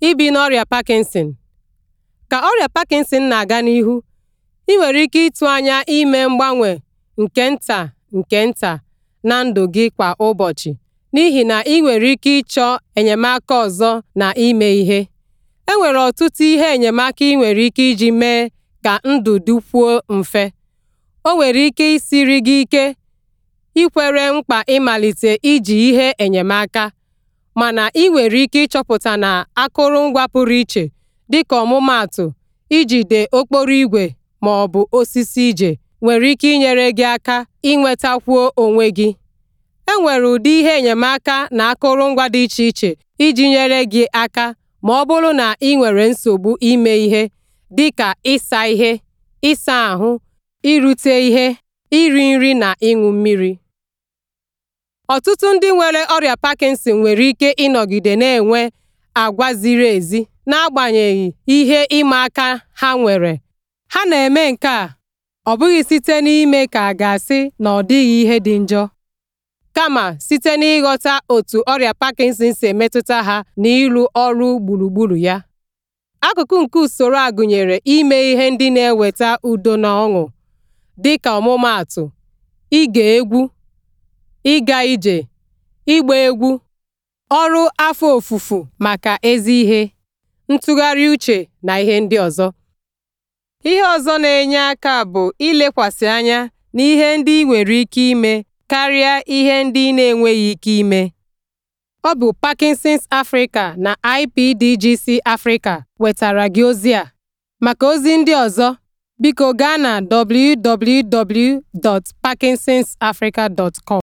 ibi na ọrịa Parkinson Ka ọrịa Parkinson na-aga n'ihu, ị nwere ike ịtụ anya ime mgbanwe nke nta nke nta na ndụ gị kwa ụbọchị n'ihi na ị nwere ike ịchọ enyemaka ọzọ na ime ihe. E nwere ọtụtụ ihe enyemaka ị nwere ike iji mee ka ndụ dịkwuo mfe. O nwere ike isiri gị ike ikwere mkpa ịmalite iji ihe enyemaka. mana ị nwere ike ịchọpụta na akụrụngwa pụrụ iche dịka ọmụmaatụ ijide okporo ígwè ma ọ bụ osisi ije nwere ike inyere gị aka inwetakwuo onwe gị. E nwere ụdị ihe enyemaka na akụrụngwa dị iche iche iji nyere gị aka ma ọ bụrụ na ị nwere nsogbu ime ihe dịka ịsa ihe, ịsa ahụ, irute ihe, iri nri na ịṅụ mmiri. Ọtụtụ ndị nwere ọrịa Parkinson nwere ike ịnọgide na-enwe àgwà ziri ezi n'agbanyeghị ihe ịma aka ha nwere, ha na-eme nke a ọ bụghị site n'ime ka a ga-asị na ọ dịghị ihe dị njọ, kama site n'ịghọta otu ọrịa Parkinson si emetụta ha na ịrụ ọrụ gburugburu ya. Akụkụ nke usoro a gụnyere ime ihe ndị na-eweta udo na ọṅụ, dịka ọmụmaatụ, ige egwu ịga ije, ịgba egwu, ọrụ afọ ofufu maka ezi ihe, ntụgharị uche na ihe ndị ọzọ. Ihe ọzọ na-enye aka bụ ilekwasị anya na ihe ndị ị nwere ike ime karịa ihe ndị na-enweghị ike ime. Ọ bụ Parkinson's Africa na IPDGC Africa wetara gị ozi a. Maka ozi ndị ọzọ, biko gaa na www.parkinsonsafrica.com.